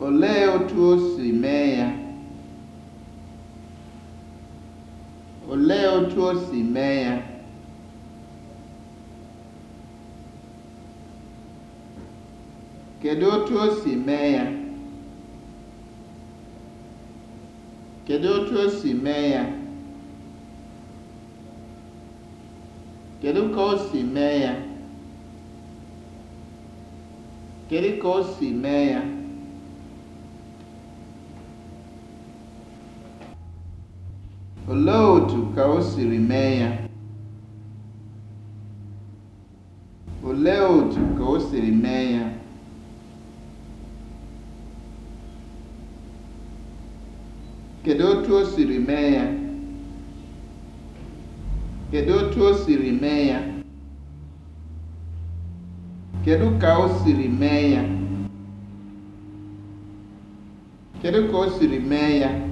Olee otu o si mee ya? Olee otú o si mee ya? Kedụ otu mee ya? ya? kedu o si mee ya? Kedụ ka o si mee ya? Olee otú ka mee ya? Olee otu o mee ya? Kedu otu o mee ya? Kedu ka o ka o siri mee ya?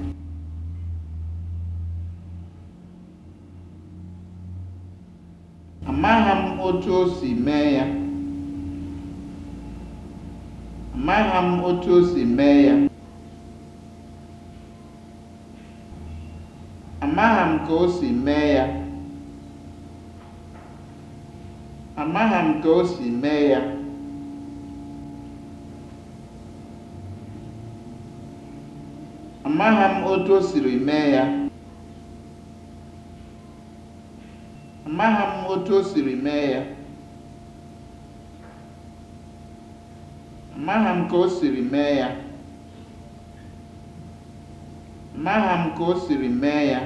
Amaghị m otu o mee ya. Amaghị m otu ya. otu o siri mee ya. Amaha m ka o siri mee ya. Amaha m ka o siri mee ya.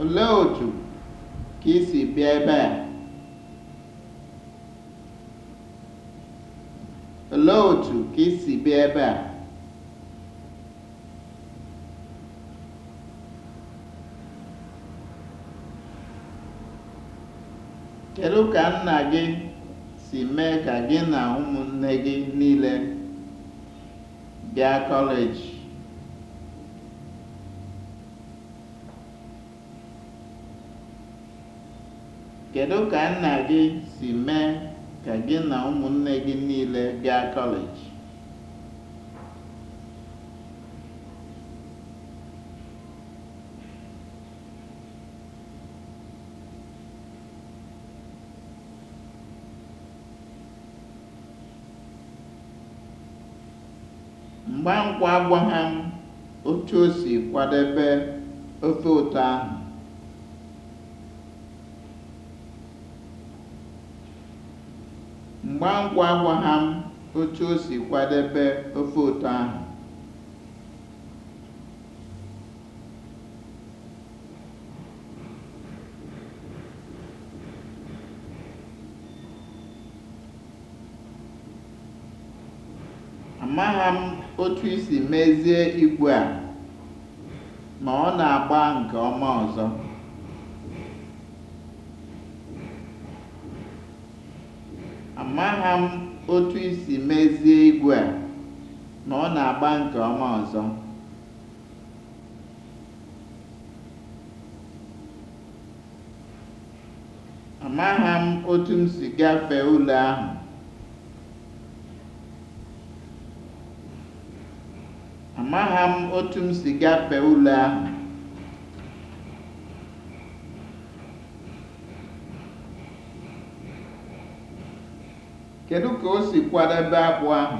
Olee otu ka isi si bịa ebe a? Olee otu ka i bịa ebe a? Kedụ ka nna gị si mee ka gị na ụmụnne gị niile bịa kọleji? gị ka gị na ụmụnne gị niile bịa kọleji? mgbe agwaghị m otu o si kwadebe ofe ụtọ ahụ. m otu o si kwadebe ofe ụtọ ahụ. Amaghị m otu isi mezie igwe a ma ọ na-agba nke ọma ọzọ. Amaghị m otu isi mezie igwe a ma ọ na-agba nke ọma ọzọ. Amaghị m otu m si gafee ụlọ ahụ. maha m otu m si gafee ule ahụ kedu ka o si kwadebe akpụ ahụ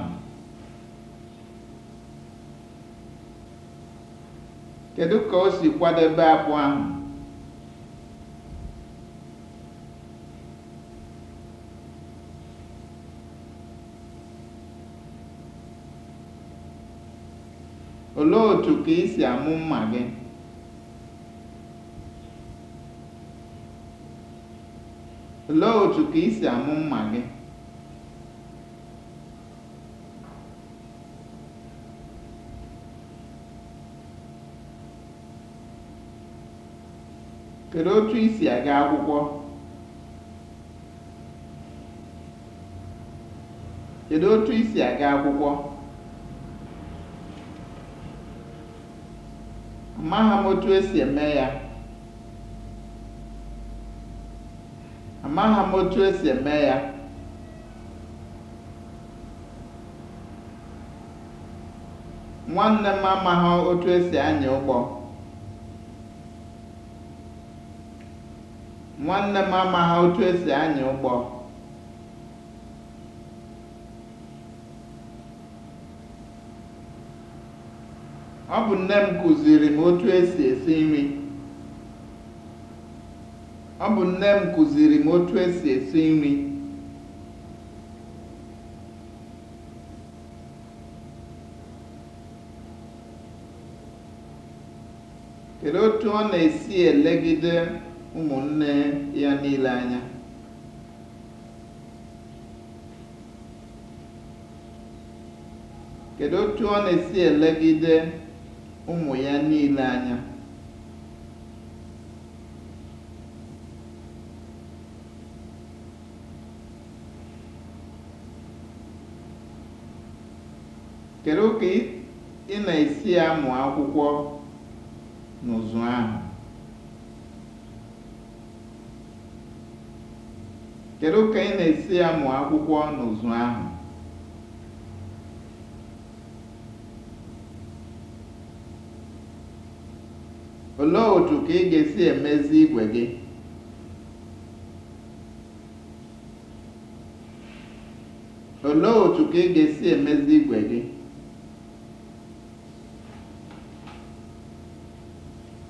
kedu ka o si kwadebe akpụ ahụ Olee otu ka ị si amụ mma gị? Olee otu ị si Kedu otu ị si aga akwụkwọ? amaghị m otu esi eme ya nwanne m amaghị otu esi anya ụgbọ esi anya ụgbọ Ọ bụ nne m kụziiri m otu esi esi nri. Ọ bụ nne m kụziiri m otu esi esi nri. Kedụ otu ọ na-esi elegide ụmụnne ya niile anya? Kedu otu ọ na-esi elegide ụmụ ya niile anya. Kedu ka ị na-esi amụ akwụkwọ n'ụzụ ahụ? akwụkwọ n'ụzụ ahụ? Olee otu ka ị ga-esi emezi igwe gị? Olee otu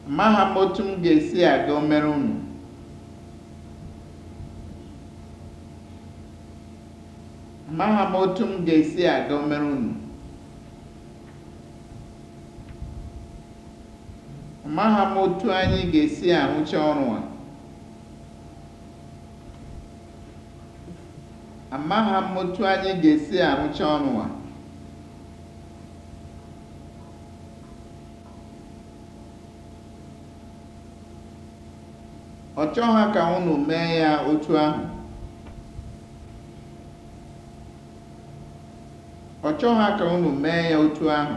m otu m ga-esi aga omere unu. unu. ma otu anyị ga-esi arụcha ọrụ a amaghị anyị ga-esi arụcha ọrụ a ọ chọghị ka unu mee ka unu mee ya otu ahụ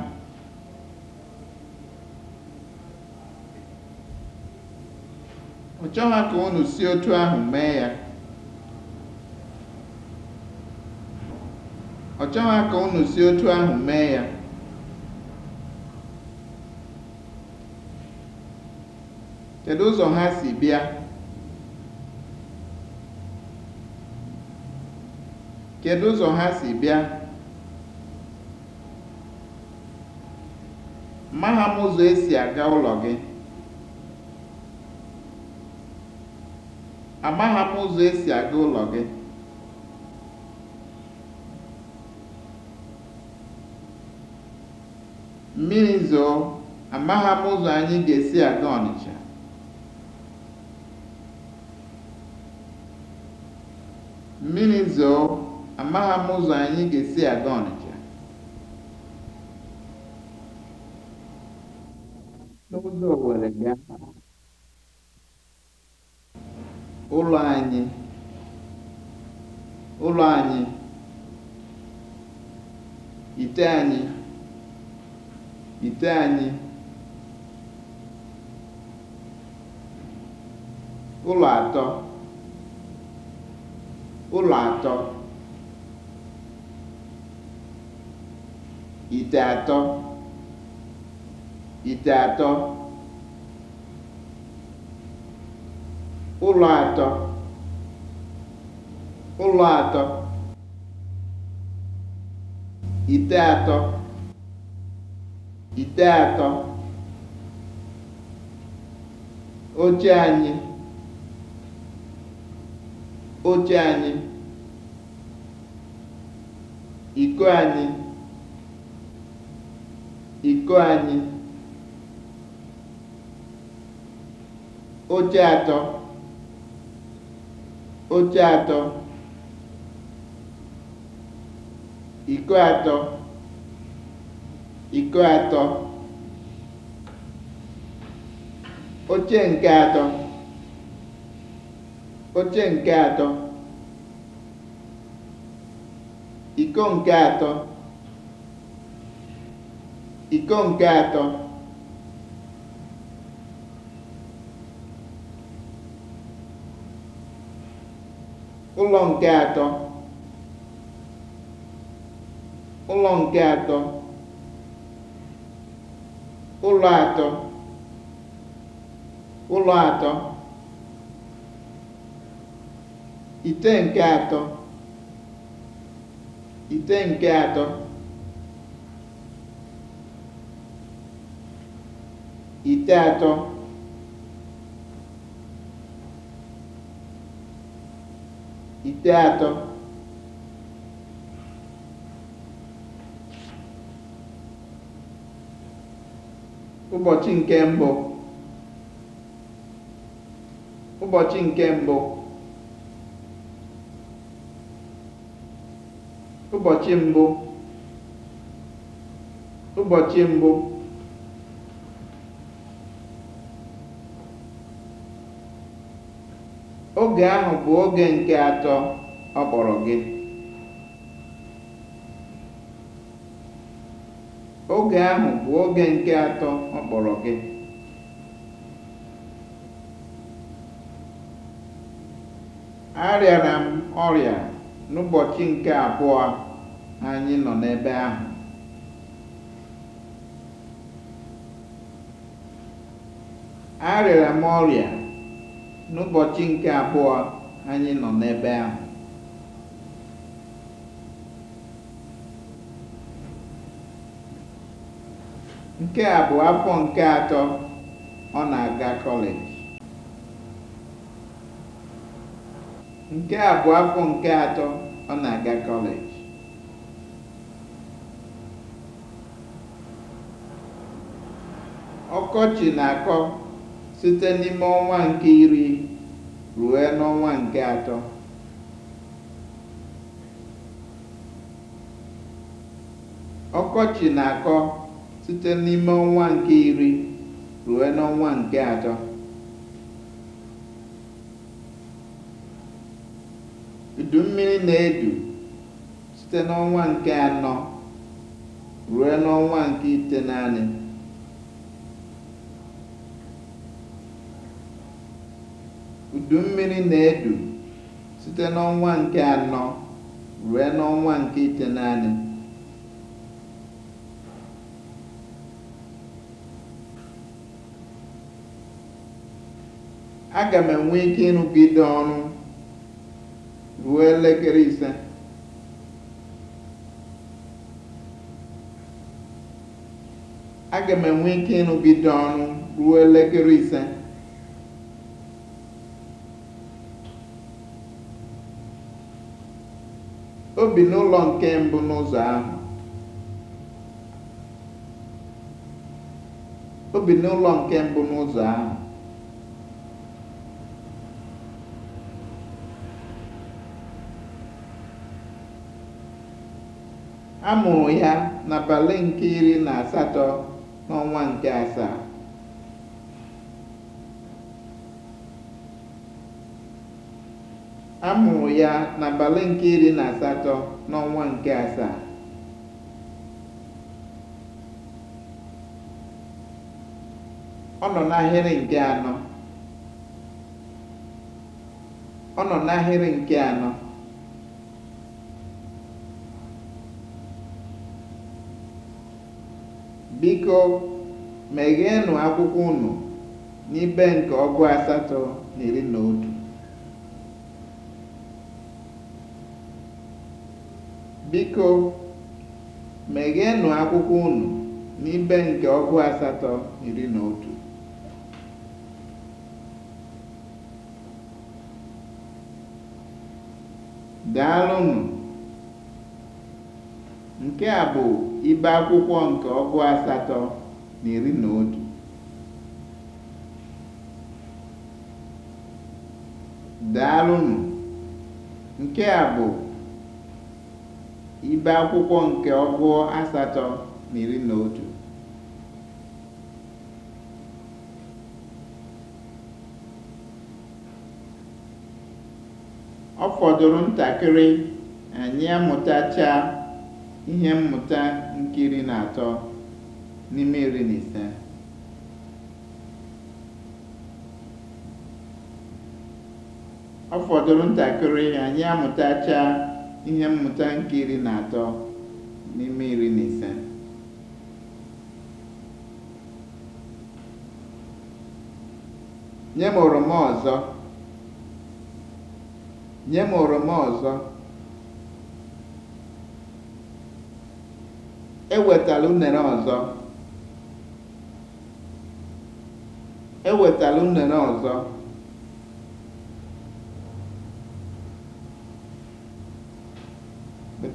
ọ chọghị ka si otu ahụ mee ya ọ ka unu si otu ahụ mee ya kedu ụzọ ha si bịa kedu ụzọ ha si bịa ma ha m ụzọ esi aga ụlọ gị Amagha m ụzọ esi aga ụlọ gị. Mmiri zoo, amagha m ụzọ anyị ga-esi aga Ọnịcha. Mmiri zoo, amagha m ụzọ anyị ga-esi aga Ọnịcha. N'ụzọ Owere bịa. Ụlọ anyị (ụlọ anyị), ite anyị (ite anyị), ụlọ atọ (ụlọ atọ), ite atọ (ite atọ) ụlọ atọ ụlọ atọ ite atọ ite atọ oche anyị oche anyị iko anyị iko anyị oche atọ oche atọ iko atọ iko atọ oche nke atọ oche nke atọ iko nke atọ iko nke atọ ụlọ nke atọ ụlọ nke atọ ụlọ atọ ụlọ atọ ite nke atọ ite nke atọ ite atọ teatro ụbọchị nke mbụ ụbọchị nke mbụ ụbọchị mbụ ụbọchị mbụ oge ahụ bụ oge nke atọ ọ kpọrọ gị oge m ọrịa n'ụbọchị nke abụọ anyị nọ n'ebe ahụ arịara m ọrịa n'ụbọchị nke abụọ anyị nọ n'ebe ahụ nke abụọ bụ afọ nke atọ ọ na-aga kọleji nke a afọ nke atọ ọ na-aga kọleji ọkọchị na-akọ site n'ime ọnwa nke iri ruo n'ọnwa nke atọ ọkọchị na-akọ site n'ime ọnwa nke iri ruo n'ọnwa nke atọ udu mmiri na-edu site n'ọnwa nke anọ ruo n'ọnwa nke ite naanị udu mmiri na-edu site n'ọnwa nke anọ ruo n'ọnwa nke itenaanị. Aga m enwe ike ịrụgide ọrụ ruo elekere m enwe ike ọrụ ruo elekere ise. O bi n'ụlọ nke mbụ n'ụzọ ahụ. O bi n'ụlọ nke A mụrụ ya n'abalị nke iri na asatọ n'ọnwa nke asaa. a mụrụ ya n'abalị nke iri na asatọ n'ọnwa nke asaa ọ nọ n'ahịrị nke anọ ọ nọ n'ahịrị nke anọ biko megheenụ akwụkwọ unu n'ibe nke ọgụ asatọ na iri na otu Biko, megheenụ akwụkwọ unu n'ibe nke ọgụ asatọ iri na otu. Daalụnụ! Nke a bụ ibe akwụkwọ nke ọgụ asatọ na iri na otu. Daalụnụ! Nke a bụ ibe akwụkwọ nke ọgụọ asatọ na iri na otu ọ fọdụrụ ntakịrị anyị ihe mmụta nke na atọ n'ime iri na ise ọ fọdụrụ ntakịrị anyị amụtachaa ihe mmụta nke iri na atọ n'ime iri na ise nye m oroma ọzọ nye m oroma ọzọ ewetala unere ọzọ ewetala unere ọzọ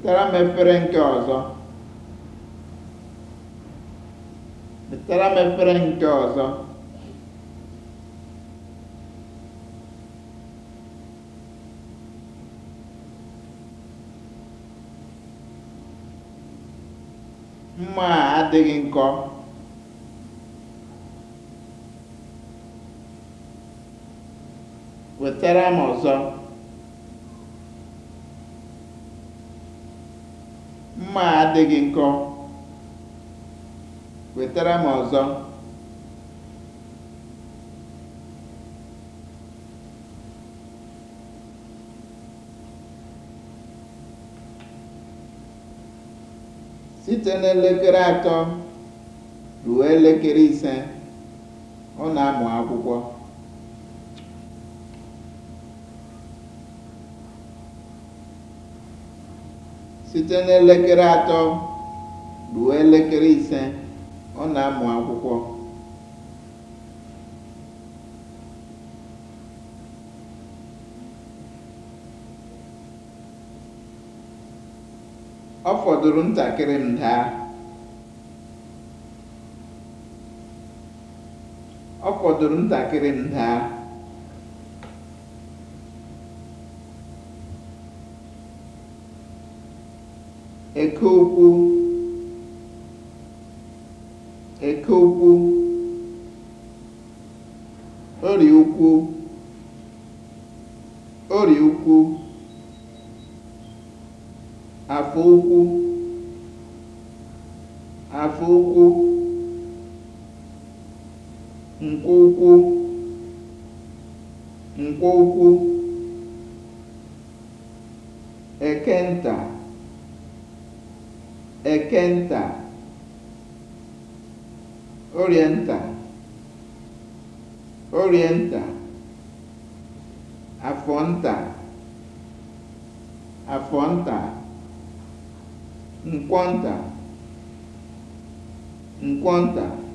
wetara m efere nke ọzọ wetara m efere nke ọzọ mma a adịghị nkọ wetara m ọzọ adịghị nkọ wetara m ọzọ site n'elekere atọ ruo elekere ise ọ na-amụ akwụkwọ site n'elekere atọ ruo elekere ise ọ na-amụ akwụkwọ. ọ fọdụrụ ntakịrị m daa ọ fọdụrụ ntakịrị m daa Eke ụkwụ, Eke ụkwụ, Ọrịa ụkwụ, Ọrịa ụkwụ, Afọ ụkwụ, Afọ ụkwụ, Nkwụ ukwu Nkwụ ukwu Ekenta, orienta orienta Afonta, Afonta, Nkwonta, Nkwonta.